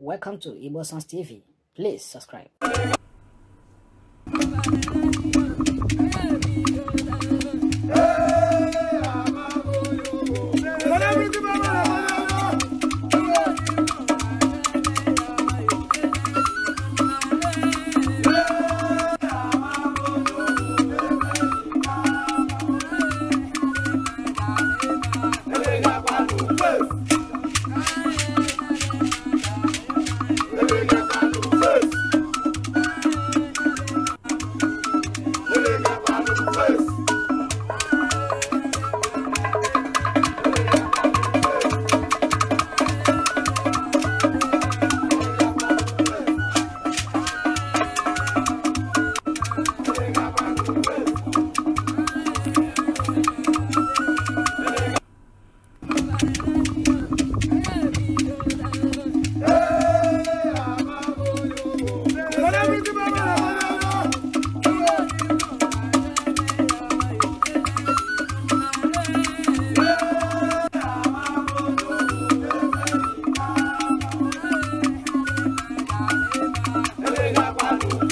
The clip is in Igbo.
Welcome to Igbo Sons TV. Please subscribe.